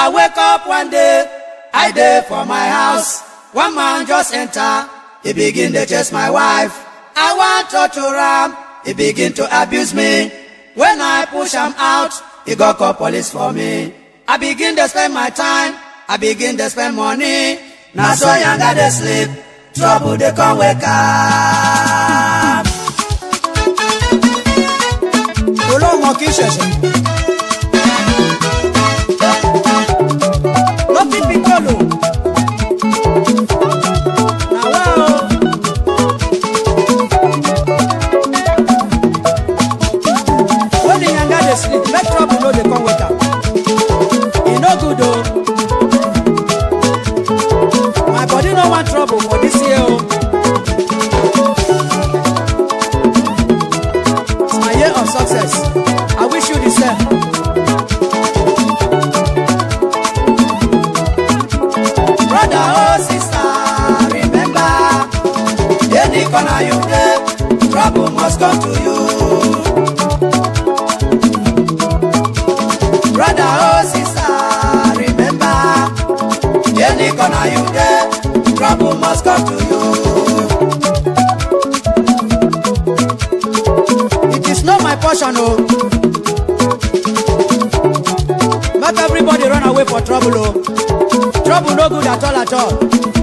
I wake up one day, I dey for my house. One man just enter, he begin to chase my wife. I want to torture him. he begin to abuse me. When I push him out, he go call police for me. I begin to spend my time, I begin to spend money. Now so yanga they sleep, trouble they come wake up. Olóhùn kì ṣẹ̀ṣẹ̀. must come to you. Brother, or oh, sister, remember, any corner you get trouble must come to you. It is not my portion, oh. Make everybody run away for trouble, oh. Trouble no good at all at all.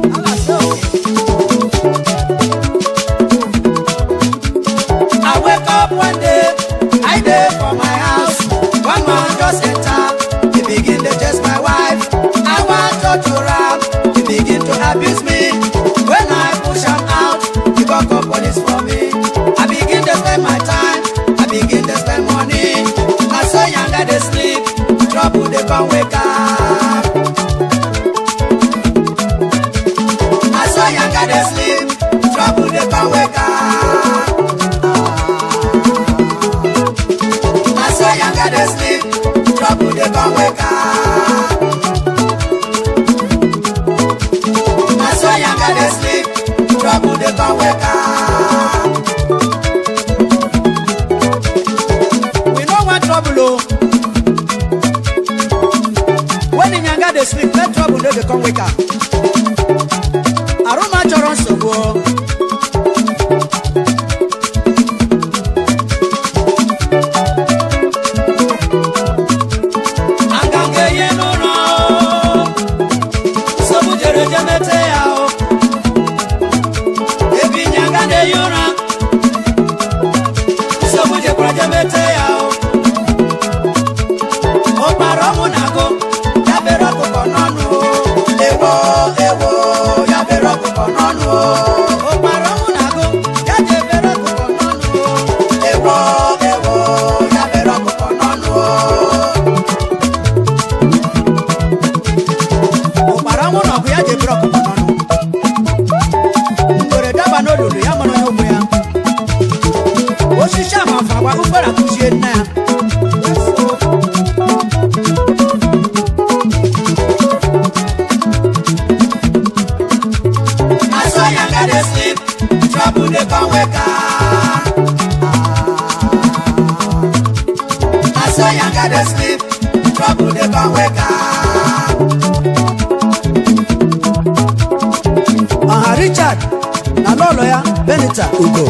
Ugo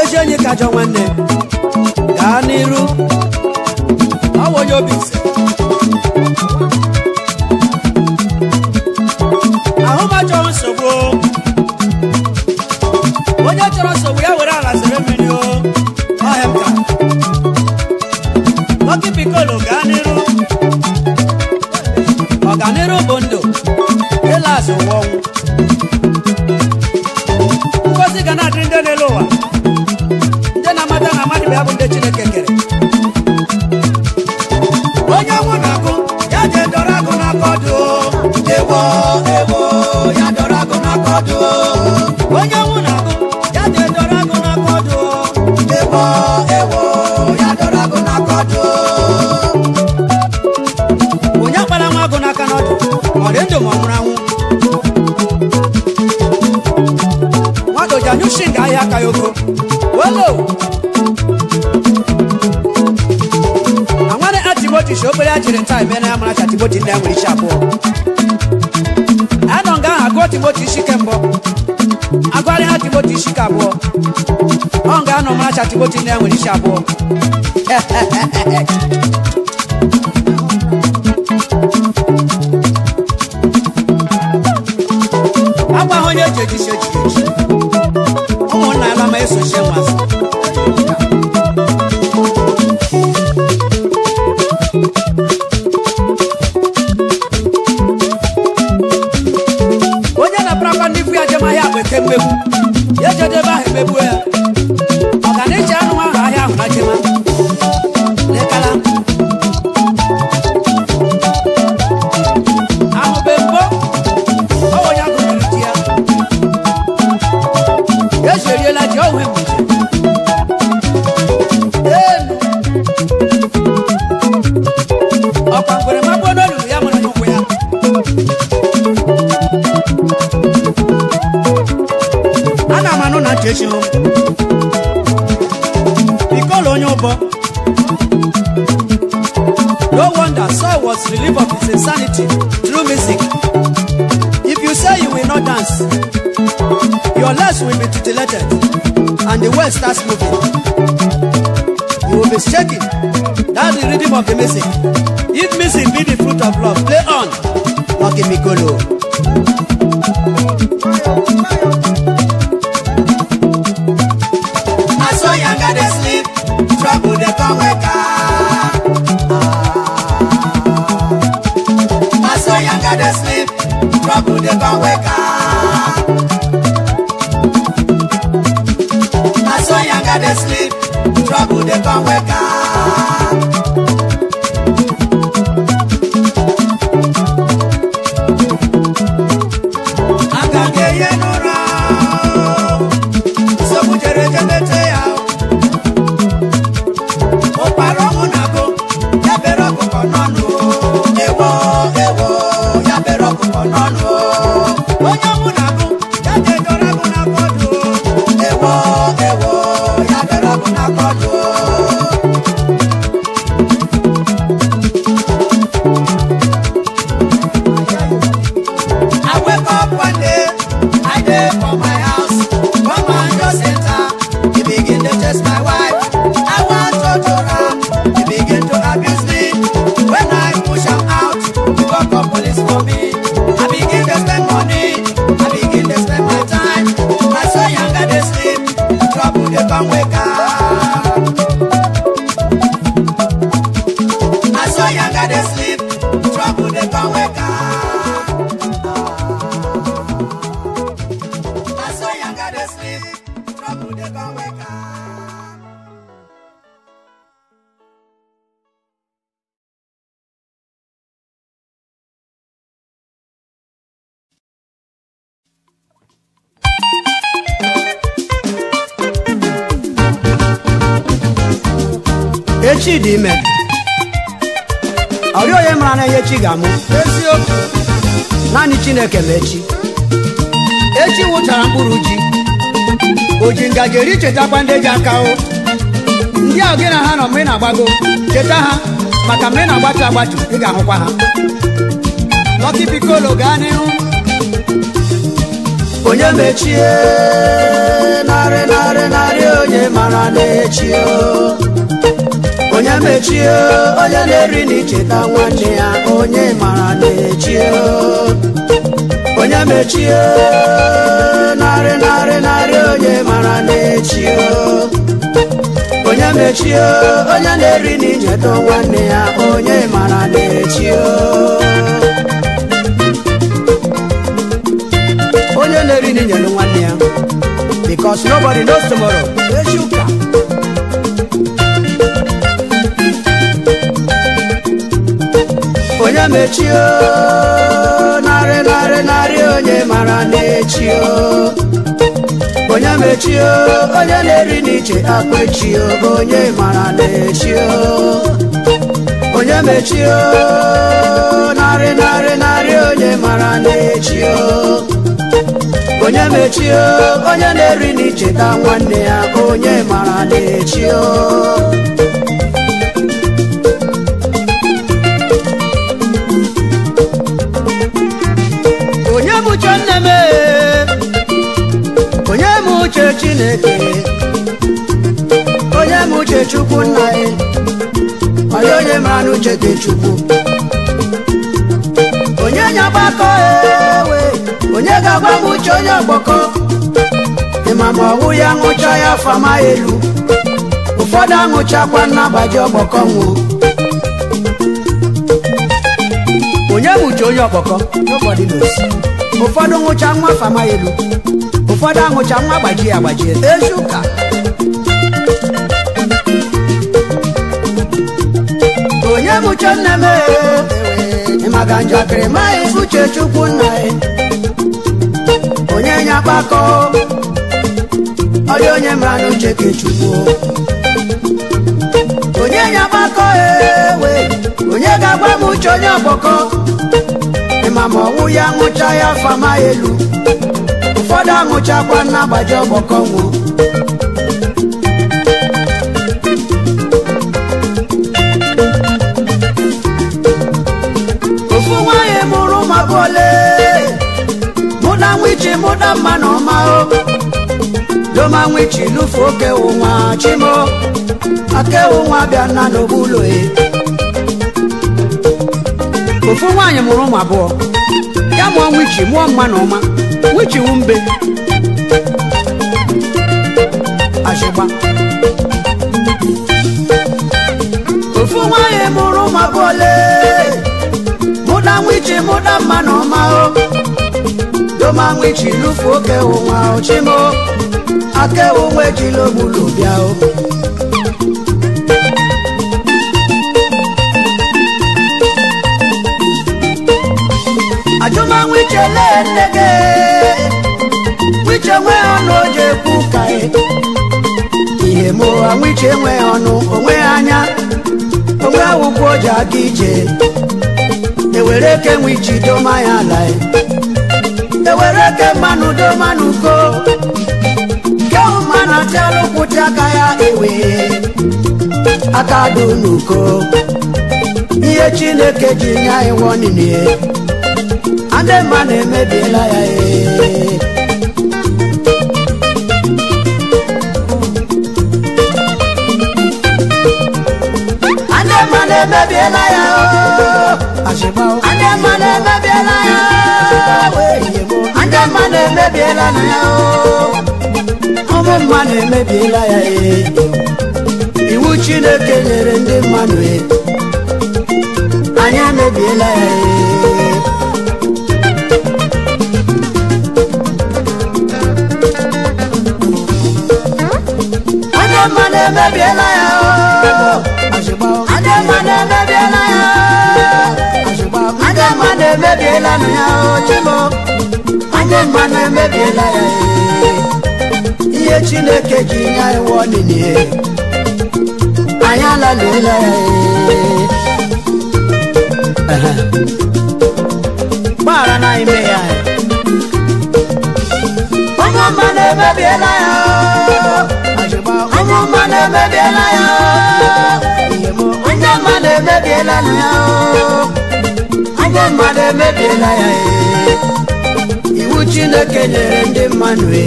eji onye ka nwanne akọdụ onye nwụ na agụ ya dọrọ agụ na akọdụ ewo ewo ya dọrọ agụ na akọdụ onye gbara nwa ma ọ nwụrụ anwụ nwagoja nyushi ga ahịa aka ya oko welo anware achịgbochi shi obere ajiri nta eme na ya mara achịgbochi nne ya nwere isi abụọ akiboti shikembo agwari akiboti shikabụọ ọ ga-anọ maracha akiboti na ya nwere isi abụọ agwa ha onye eji eji isi eji eji ụmụnna ala ma esochie nwazụ ekpegbu ya jedebe aha ekpegbu ya election because Onyobo no wonder soil was relief of his insanity through music if you say you will not dance your legs will be titillated and the world starts moving you will be shaking that's the rhythm of the music if music be the fruit of love play on Lucky Mikolo. echi ga-amụ eziokwu naanị Chineke ma echi nwụchara mkpụrụ ji Oji ji ngaji eri chetakwa ndị ji aka o ndị ahụ gị na ha nọ ma ị na-agbago cheta ha maka mgbe ị na-agbatu agbatu ị ga-ahụkwa ha Lucky Piccolo gaa n'ihu onye mechie narị narị narị onye mara na-echi onye mechie onye na-eri na icheta nwanne ya onye mara na-echie onye mechie narị narị narị onye mara na-echie onye mechie onye na-eri na nwanne ya onye mara na-echie onye na-eri na nwanne ya because nobody knows tomorrow echi onye mechio narị narị narị onye mara na-echio onye mechio onye na-eri n'iche akwechio onye mara na-echio onye mechio narị narị narị onye mara na-echio onye mechio onye na-eri n'icheta nwanne ya onye mara na-echio uche chineke onye m uche chukwu nna gị onye onye mara na uche gị chukwu onye nya gbakọ ewe onye ga-agwa m uche onye ọgbakọ ịma ma ọwụ ya nwụcha ya fama elu ụfọdụ anwụchakwa nnabaji ọgbakọ nwụ onye m uche onye ọgbakọ ụfọdụ nwụcha nwa fama elu ụfọdụ anwụcha nwa gbajie agbajie ezi ụka onye mụcha nne m ee maka njakịrị maghị uche chukwu nna ya onye nye akpakọ ọdị onye mara n'uche ka chukwu onye nye akpakọ ewe onye ga agba m uche onye ọgbọkọ ịma ma ọnwụ ya nwụcha ya afọ elu ụfọdụ amụchakwa na agbaji ọgbọkọ nwụ ofu nwaanyị mụrụ ụmụaka ole mụ na nwichi mụ na mma na ọma loma nwichi n'ufu oke ụnwa chimo akewụ ụnwa bịa na n'obulo e. ofu nwaanyị mụrụ ụmụ abụọ ya mụọ nwichi mụọ mma na ọma wuchiwu mbe ashịgba ofu nwanyị mụrụ ụmụabụole mụda nwichi mụda mma na ọma o doma nwichi lufu oke ụwa ochimo aka onwe jila ogbulu bịa o kelee nne ọnụ ihe ma ụha wiche nwe ọnụ onwe anya onwe awụkwa o ji aga ije ewere eke nwe iji doma ya ala ewere eke mmanụ doma n'uko ke ụma na tialụkwụti aka ya ewe aka dị n'uko ihe chineke ji ya anyị nwanne adema e. ma ya na-emebiela ya adema emebiela ya e. iwu chineke nyere ndị mmadụ e. anya emebiela ya ee ademane mebiela ya ademane mebiela ya ademane mebiela nu ya chimo ademane mebiela ya iye chineke ji ya iwọ nini ye anyị alalela ya gbara na ime ya onye ọma ya onye mma na-emebiela ya onye mma na-emebiela ya onye mma emebiela ya iwu chineke nyere ndị mmadụ e.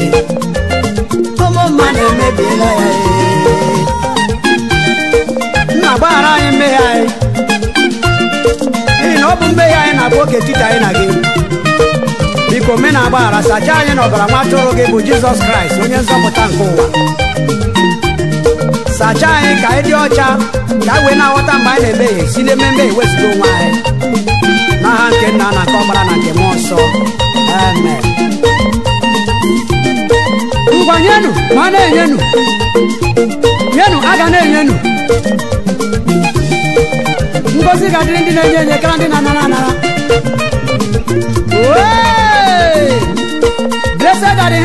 ụmụ mma na-emebiela ya e. nna gbaghara anyị mmehie anyị n'ihi na ọ bụ mmehie anyị na-abụ oke titi anyị na gị biko me na agbaghara sacha anyị na ọbara nwa atụrụ gị bụ jizọs kraịst onye nzọpụta nke ụwa sacha anyị e ka anyị e dị ọcha ka e wee na-aghọta mgbe anyị na-emehie si n'ememe ewezuga onwe anyị n'aha nke nna na nke na nke mmụọ nsọ ngwa nyenu ma na-enyenu nyenu a na-enyenu ngozi ga-adịrị ndị na-enye enye kara ndị na-anara anara blessed are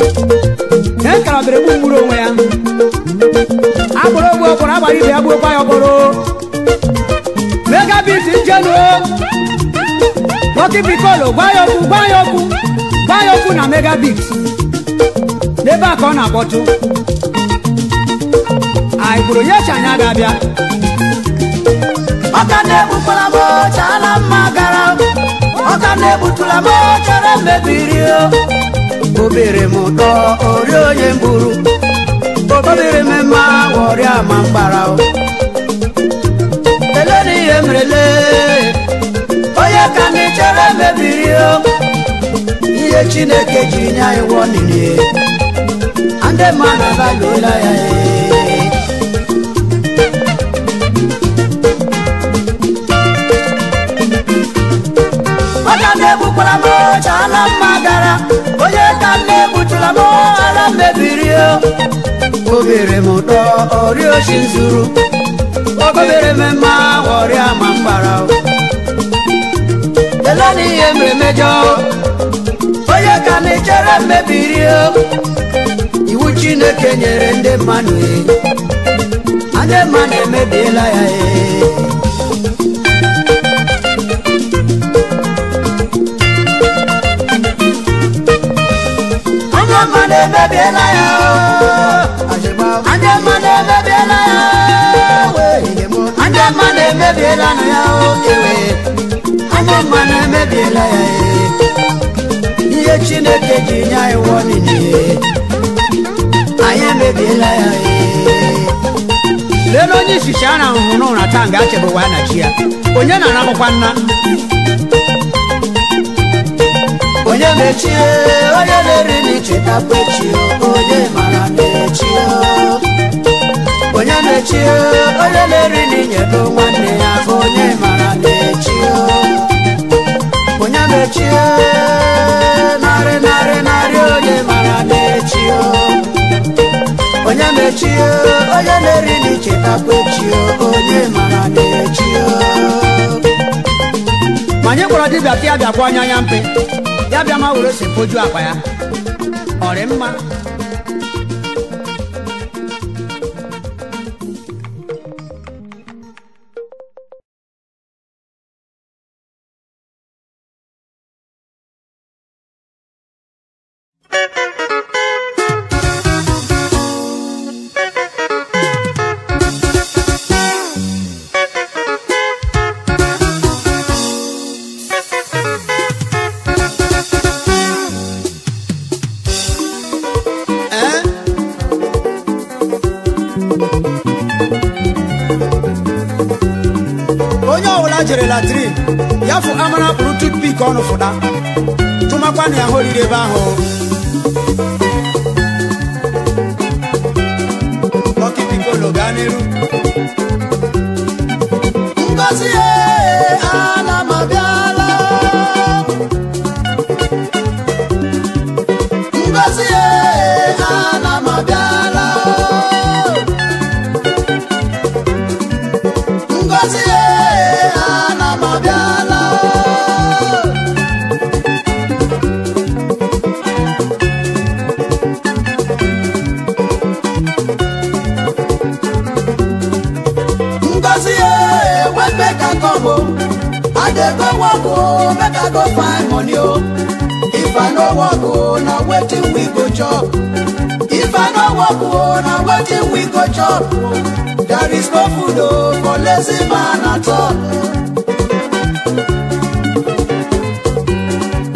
e egbu onwe ya agbụrụ ogwe agbara ibe ya gburukwa ya ọkpọrọ megabit njenu Lucky Piccolo gwa ya okwu gwa okwu na megabit n'ebe a ka ọ na-akpọtụ anyị kwuru nye ga-abịa na mma gara m obere m ụtọ ori onye mburu obere mmemme ọrịa ma mgbara ele na ihe mrele onye ka gị chere mebiri ihe chineke jiri nye anyị wụọ n'ihe ndị mmadụ abalụola ya ee ọka egbukwara m ọcha ala mma mo ala mebiri o obere m ụtọ ọrịa oshi zuru obere m mma ọrịa ma mgbara ele na ihe mere mejọ onye ka m ichere mmebiri o iwu chineke nyere ndị mmadụ anyị mma na-emebiela ya ee emebiela ya ndị mmadụ emebiela ya ndị mmadụ ya ewe ndị mmadụ emebiela ya ihe chineke ji nye anyị wụọ n'ihe anyị emebiela ya lee n'onye isichi a na-ahụhụ n'ụra taa nga achebụwa na chi ya onye na-anabụkwa nna onye mechie dere ni chita kwechi onye mara mechi onye mechi onye dere ni nyedo nwanne ya onye mara mechi onye mechi nare nare nare onye mara mechi onye mechi onye dere ni chita kwechi onye mara mechi manye kwara dibia ti abia kwa anya ya mpe ya bia ma were si poju akwa ya 我人吗？kudo polisi mana tolo.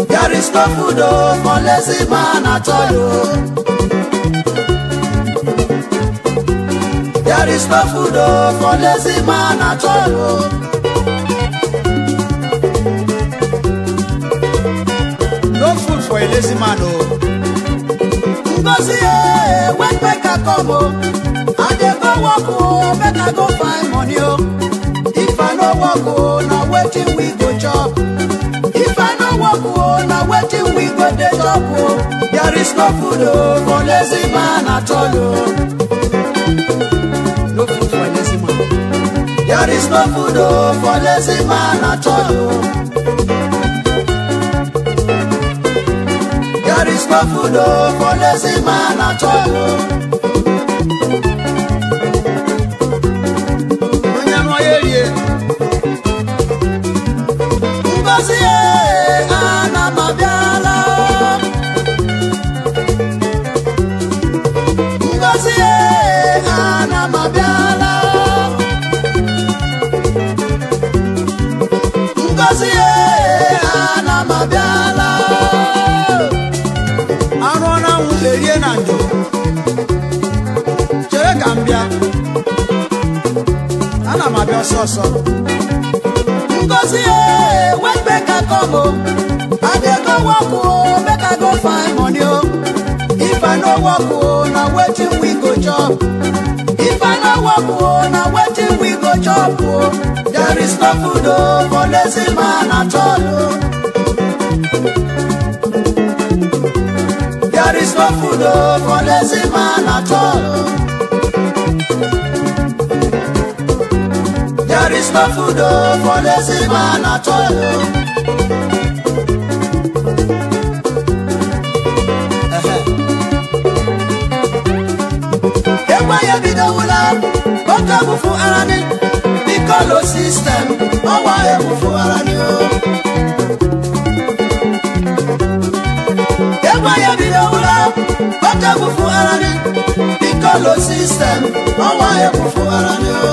There is no kudo polisi mana tolo. There is no kudo polisi mana tolo. for a lazy man, oh. Ngozi, eh, when back come, oh. no work, oh, better go find money, oh. If I no work, oh, now waiting we go chop. If I no work, oh, now waiting we go the chop? oh. There is no food, oh, for lazy man at all, oh. No food for lazy man. There is no food, oh, for lazy man at all, oh. There is no food, oh, for lazy man at all, oh. ọsọsọ ngozi e wet make i come o i dey go work o make go find money o if i no work o na wetin we go chop if i no work o na wetin we go chop o there is no food o for lazy man at all o. There is no food oh, for lazy man at all. There is no food for lazy man at all. Ẹ̀wá yẹ bí dawula, ó kẹ́wù fún ara ní. Bíkọ́lù system, ó wá ẹ̀wù fún ara ní o. Ẹ̀wá yẹ bí dawula, ó kẹ́wù fún ara ní. Bíkọ́lù system, ó wá ẹ̀wù fún ara ní o.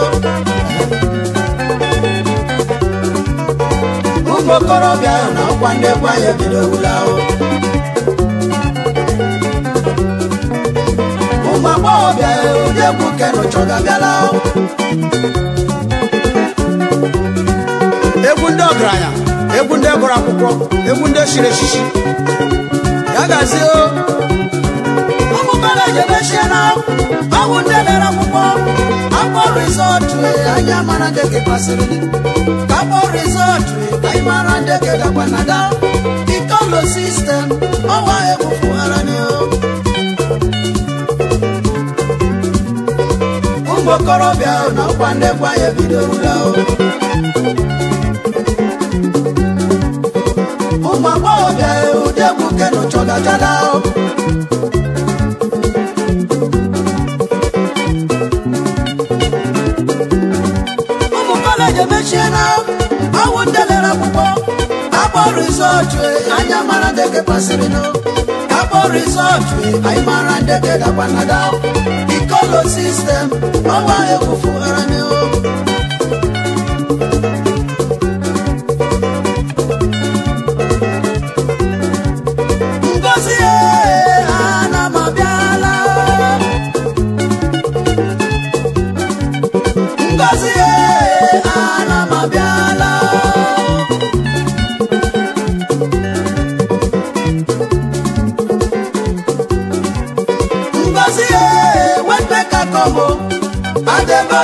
ezigbo okorobịa na ọkwa ndị egwu anyị ebidowula ahụ ụmụ agbọghọbịa ụdị egwu kenụchọga bịala ahụ egwu ndị ọgaranya egwu ndị gụrụ akwụkwọ egwu ndị chiri echichi ya gazie mara jebechiana ọgwụ ndị dara akwụkwọ akpọ rizọtụ anyị amara nke ke kwasịrị gị ka rizọtụ anyị mara ndị ke dakwa na da ikolo sistem ọwa egwufughara nị ụmụ okorobịa na ọkwa ndị gwa ya bidorola ụmụ agbọghọbịa ụdị egwu I'm a man. kaporisotwe eh, I'm mara man. pasirino kaporisotwe eh, aimara ndeke The color system owa ekufuharaneo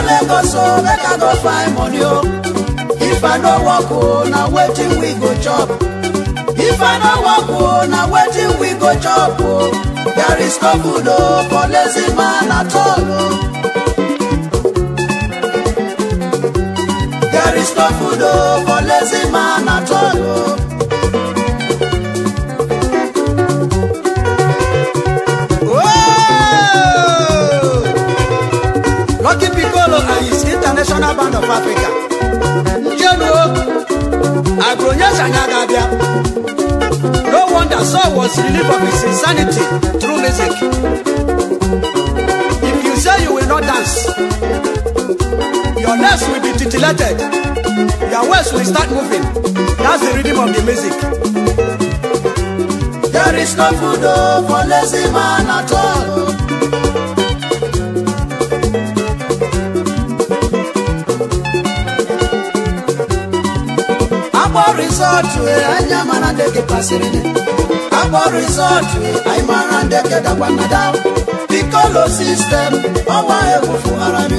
go so, o make i go find money o if i no work o na wetin we go chop if i no work o na wetin we go chop o there is no food o for lazy man at all o there is no food o for lazy man at all o. National band of Africa njenu agronyesa anyị ga no wonder Saul was relieved of his insanity through music if you say you will not dance your legs will be titillated your waist will start moving that's the rhythm of the music there is no food oh, for lazy man at all rizọtụ anyị amara ndị gị pasịrị akpọ rizọtụ anyị mara ndị gị dakwa na ikolo sistem ọnwa ekwufugara m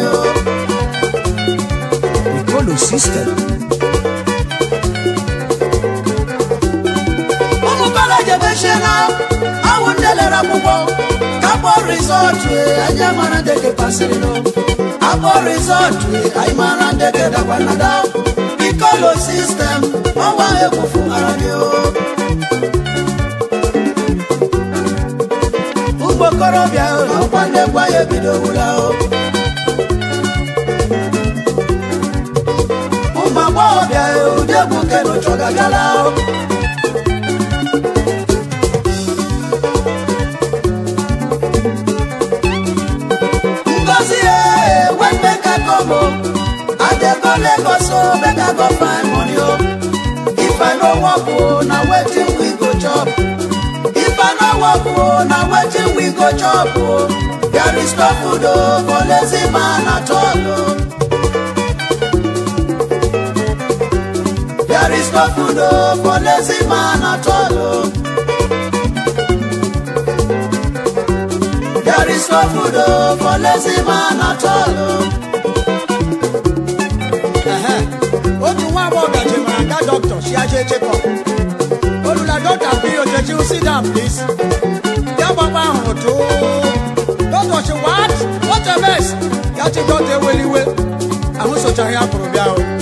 ikolo sistem awụ ndị lere akwụkwọ akpọ rizọtụ ndị gị akpọ rizọtụ anyị mara ndị gị dakwa kọ́lọ̀ system wọ́n wá ewu fún ara ni o. ugbo korobịa ọkwa ndekwa ya ebidowula o. ụmụ agbọghọbịa ụdị egwu kenucho gagala o. Ngozi ya enwe mmeka go find money o oh. if i no work oh, na wetin we go chop if i no work oh, na wetin we go chop o there is no food oh, for lazy man at all o. There is no food oh, for lazy man at all o. There is no food oh, for lazy man at all. Oh. one word that you man, doctor, she has a check-up. Olula doctor, period, that you sit down, please. Yaba ma hoto. Doctor, she what? What a mess. Yati got a willy will. I'm so tired from you.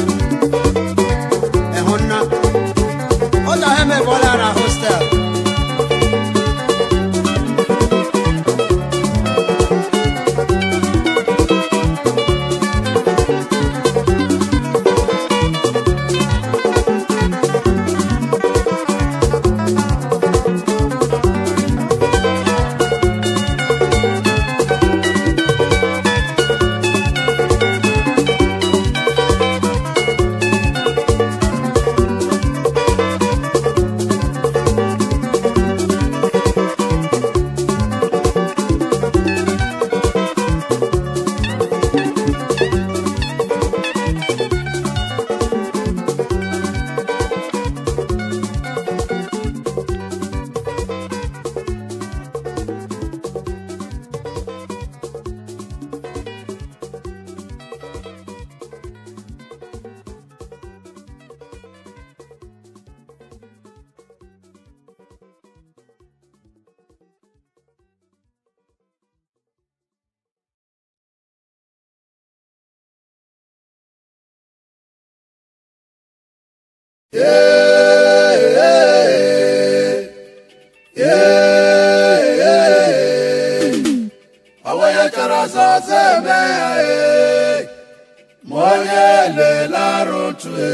to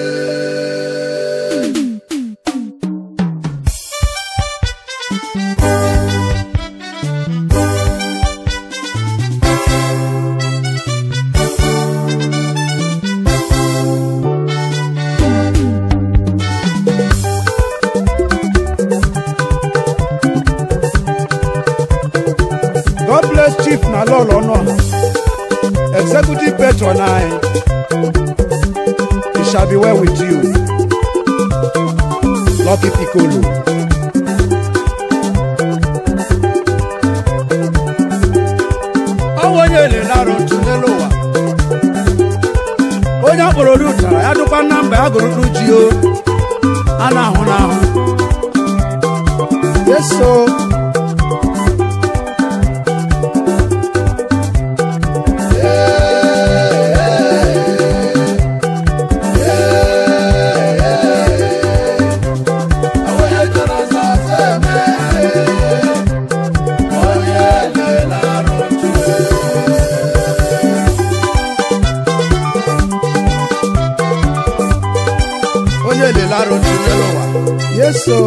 o.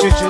Juju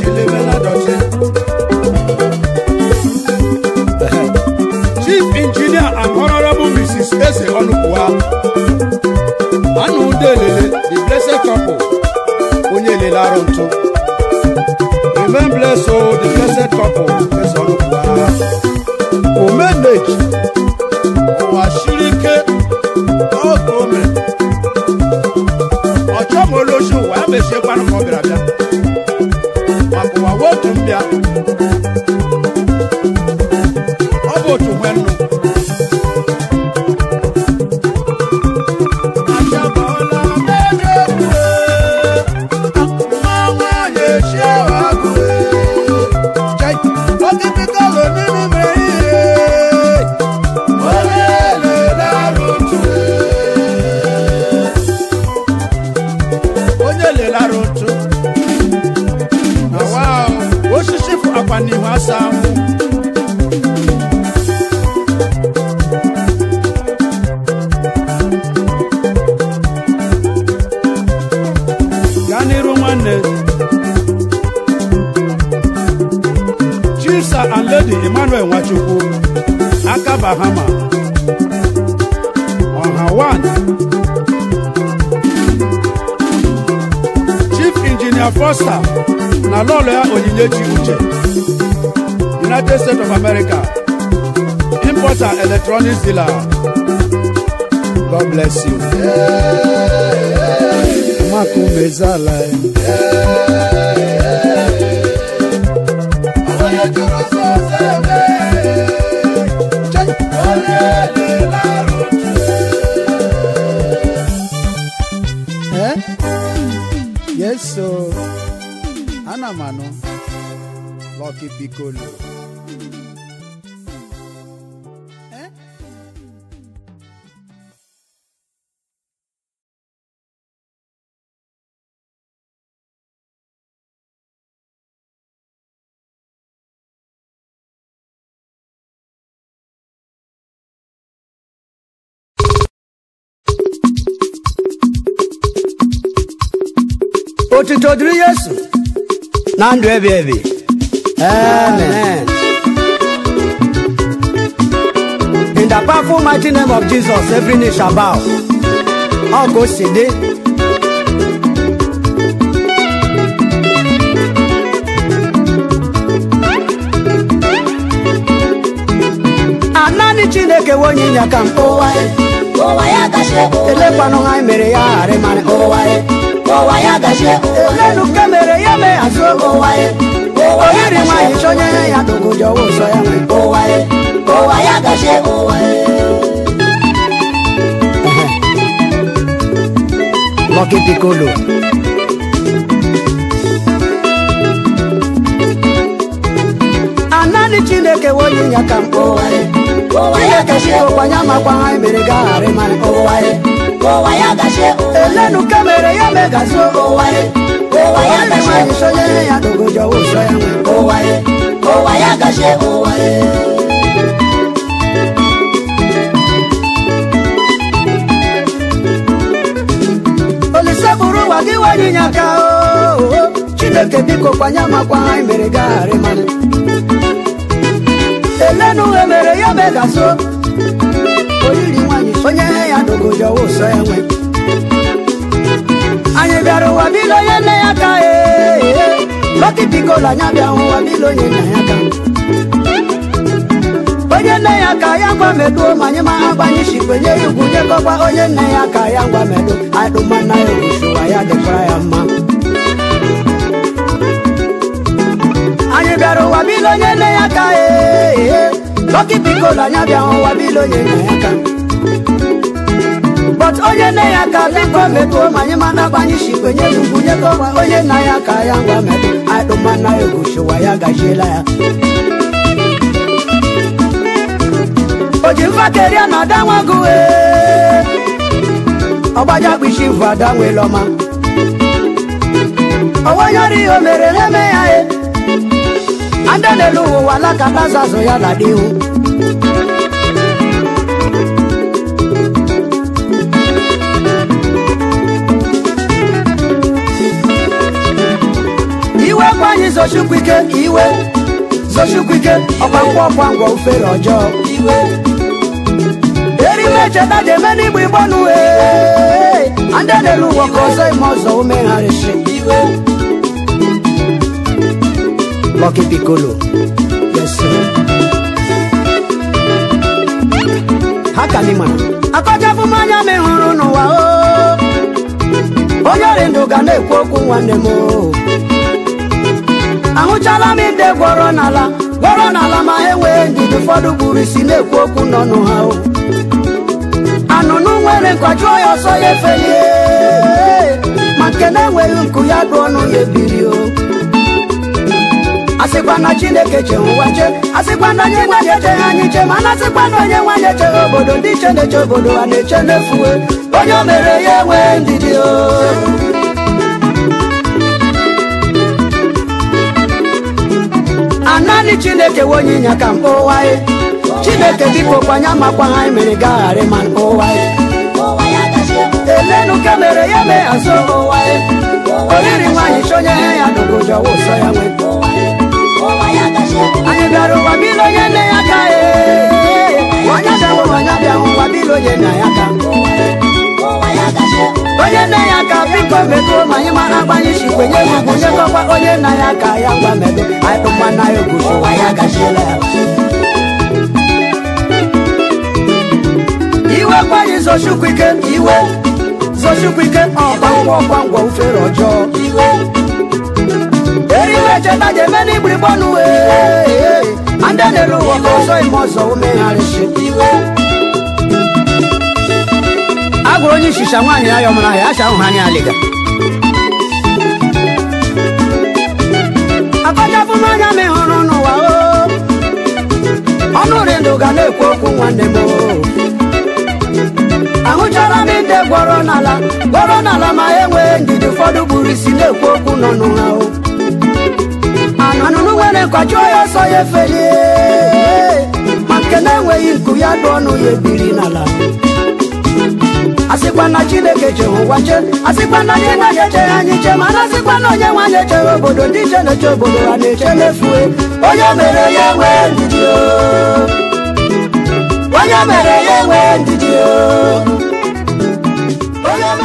Bless gaa n'iru nwanne chisa aledi emmanuel wachukwo akabahama ọha chief injinia fọsta na lọlụ ya onyinye chiuche United States of America, importer, electronics dealer. God bless you. Makumezala. Eh? Yes, so Anamano. Lucky Piccolo. wadiri yesu na ndụ ebi ebi amen in the powerful mighty name of jesus every knee shall bow All ọ ka o si dị naanị chineke nwe onye ịnya ka m elekwanụ ha mere ya ghara ịmarị ụwa ya mere ya mee azụ oge ụwaye oyiri nwaanyị chọnye ya ya dogoji ọwa ụzọ ya na ụwa ya gachie ụwaye Lucky Anaghị naanị chineke wonye ya ka mkpụ ụwaye ụwa ya gajie ụkwanya makwa ha mere gaghara ịmara ụwaye ụwa ya gashe elenu kamere ya megazo ụwa ya ụwa ya gashe isonye ya n'ogojo ụsọ ya nwe ụwa ya ụwa ya gashe ụwa ya bụrụ ụwa gị nwanyị nye aka chineke biko kwanye amakwa anyị mere gagharị mmanụ elenu emere ya megaso oriri nwanyị onye ya dogoja ụsọ enwe anyị bịara ụwa bilo onye nne ya ka e. lọkị bikola anya bịa ụwa bilo onye nna ya ka onye nne ya ka ya ngwa meduo ma anyị ma ha gbanye shikwenye ya ugwu nyekọkwa onye nne ya ka ya ngwa medu adụmana ya owusuwa ya dịkwa ya mma anyị bịara ụwa bilo onye nne ya ka ee Toki bikola nyabịa wabilo ye na ya ka but onye na ya ka biko mepuo ma anyị mana agbanye shikwe nye ugwu nye gọwa onye na ya ka ya ngwa na egoshiwa ya gajiela ya oji mfakeria na adanwa gụwe ọgbaja kpishi vụ ada nwelọma ọwanyọrọ mere na andele luwa lakabazazo ya ladiu iwe kwanyị zochukwike iwe zochukwike ọkwangwa ọkwangwa ufere ọjọọ iwe erime cheta jeme n'igbo igbo nu ee andele luwa ka ọzọ ime ọzọ umegharịsị iwe Lucky Piccolo. Yes, sir. Haka ni mana. Akọcha fún mmanya m hụrụ n'ụwa o. Onye ọrịa ndụ ga na-ekwu okwu nwanne m o. n'ala gwọrọ n'ala ma ha enwee ndidi ụfọdụ gburu isi na-ekwu okwu n'ọnụ ha o. Anụnụ nwere nkọjụọ ya ọsọ ya efeli ma nke na-enweghị nku ya o. asịkwa na chineke che ụwa che asịkwa na onye nwanyị echeghị anyị ma na asịkwa na onye nwanyị echeghị obodo ndị che na-eche obodo a na-eche n'efuwe onye o mere ya enwee ndidi o naanị chineke we onye ka chineke dịka okwanye amakwa ha mere gaghara ma mkpa elenu mere ya mee azụ ụwa oriri nwaanyị chọnye ya ya ya nwee anyadaro wabilo yene yaka wakadawo wanyadawo wabilo yene yaka onye nne ya ka biko metụrụ ma anyị mara agbanye si kwenye ugwu nyekọkwa onye nna ya ka ya gwa medo anyịkpụkwa na ya ogwu ụwa ya gachiela ya iwe kwanye zochukwu ike iwe zochukwu ike ọgwangwa ọgwangwa ufere ọjọọ iwe eri mecheta ga-eme n'igbirigbo n'uwe ndị na-ere ụwa ka ọzọ ime ọzọ umegharịsị a gwụrụ onye ishisha nwaanyị ya yọmara ahịa acha ahụ anya alịga akọchapụ m anya m n'ụwa ọnụ ri ndụ ga na-ekwu okwu nwanne m ahụchara m ndị gwọrọ n'ala gwọrọ n'ala ma enwee ndidi ụfọdụ buru isi na-ekwu okwu nọ n'ụra anunungwene kwacho yoso yefeye makene enweghi nku ya dụ ọnụ ya ebiri n'ala asịkwa na chineke jehụwa che asịkwa na nye na nye che anyị che ma na asịkwa na onye nwanyị echewe obodo ndị che na-eche obodo ha na-eche n'efue onye mere ya enwee ndidi onye mere ya enwee ndidi onye mere ya enwee ndidi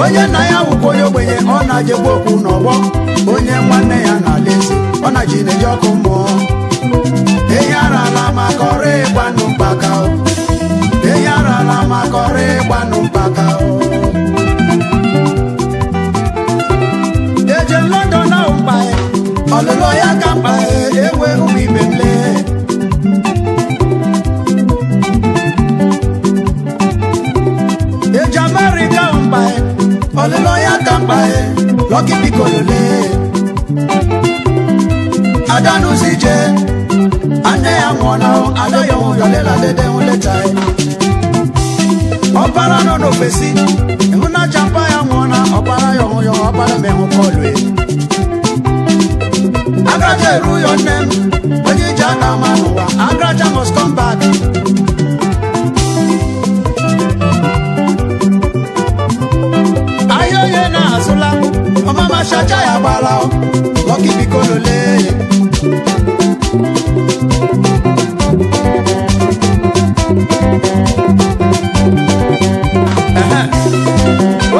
onye na ya wụkwa onye ogbenye ọ na-ajegbu okwu n'ọgbọ onye nwanne ya na-ala ọ na ji na-eji ọkụ mmụọ ehi arala maka ọrụ ịgbanụ mgbaka àgbáyé lọ́kì bí kò lè. adánù sì jẹ́ adé àwọn ọ̀nà adóyọ̀wò yọlé ládẹ́dẹ́ ń lẹ́ta ẹ̀. ọ̀bára náà ló fèsì ìmúnájà ń bá àwọn ọ̀nà ọ̀bára yọ̀hún yọ̀hún ọ̀bára mẹ́hún kọlù ẹ̀. agraja èrú yọ nẹ́m onye ìjà náà máa nù wá agraja must come back. asụla mama machacha ya gbara lọkị biko lole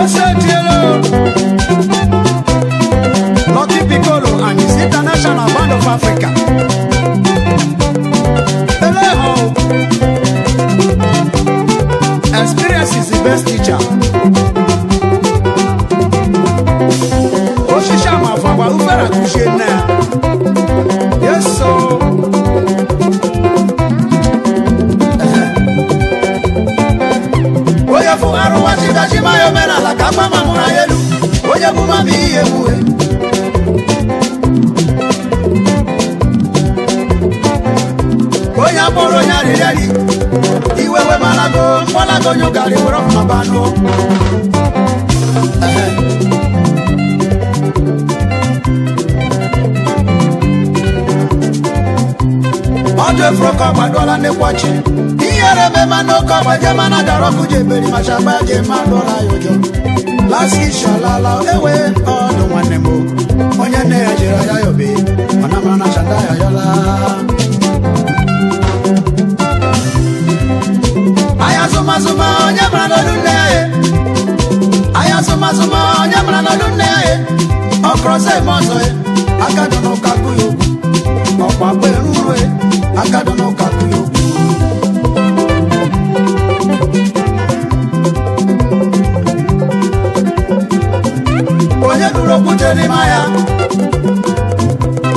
ose tielo and his international band of africa ọchị ihere eme mana oke ọgbaje mana ọkụ ji eberi ma agba ji eme alụla ya ụjọ ewe ọdụ nwanne m onye nne ya aya ya obe mana mara na chanda ya yọla okwute ma ya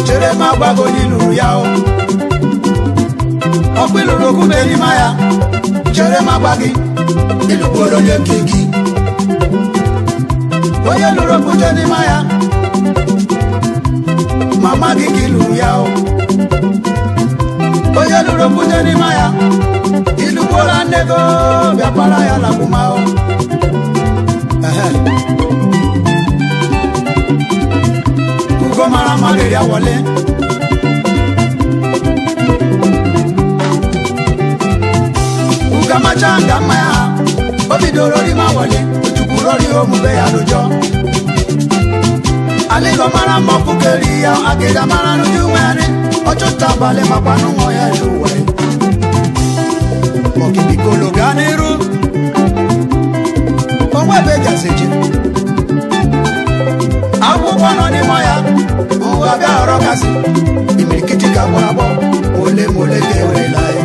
chere ma gbago n'iluru ya ọkwa iluru okwute ma ya chere ma gba gị ịlụkwuru onye nke gị onye lụrụ okwute n'ime ya ma gị ka ịlụrụ ya onye lụrụ okwute n'ime ya ịlụkwuola nne gị bịakwara ya na lagbuma igbo mara mma riri awọle ukamacha nga mma ya o bidoro rima awọle ochukwuru ori omume ya n'ụjọ ala igbo mara mma ọkpụkeri ya agịga mara n'ụdị nwere ọchụta abalị makwa n'ụwa ya n'ụwa okibikolo gaa n'iru onwe ebe eji akwụkwọ nọ n'ime ya aga ọ̀rọ̀ kasi ìmìkìtì kakọ abọ olemole ke olela ye.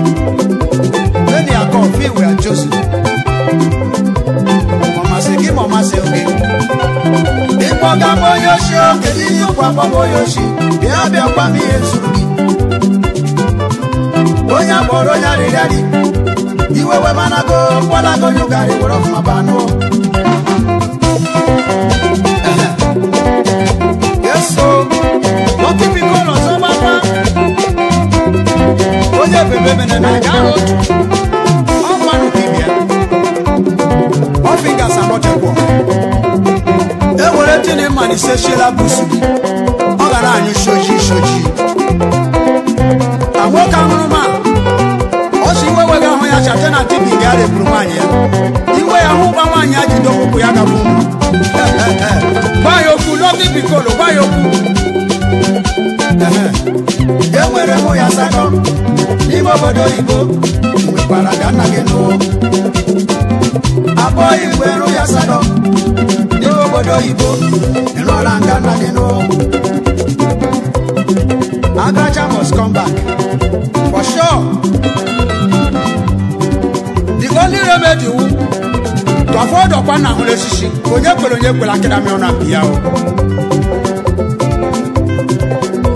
lẹ́ni akọ fi ìwé àjọsù mọ̀mọ́sí kí mọ̀mọ́sí oge. ìgbọ̀ngà mo yóò ṣe o kèdí yóò pọ̀ mo yóò ṣe bí abẹ́ ọ̀pá mi yẹn sùn mi. onye akpọrọ onye arịrịa gị iwewe mana go kwala go nyụgarị were ọfụma bebe bene na jaro o manu kibia o finger sabote kwa e mani se shela busu o gara anyu shoji shoji awo ka nru ma o ga ho ya chate na tibi ga re ya iwe ya hu ba manyi ajido kuku ya ga bu ba yoku bi bikolo ba yoku E enwere m ya asatọ n'ime obodo oyibo nwekwara ka nna gị nụọ abụọ igwe rụ ya asatọ n'ime obodo oyibo ịlụọla nga nna gị nụọ Agacha must come back for sure the only remedy wu tọfọdọkwa na ahụrụ esisi onye kwere onye kwere akịra mịọ na mpi ya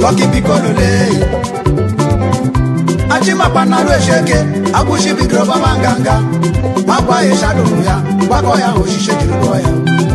ọkibikọlulei achimakpa narụ echeke agwụchibidoro baba nganga agwa ya shadowu ya gbakọ ya oshiche jiri gụọ ya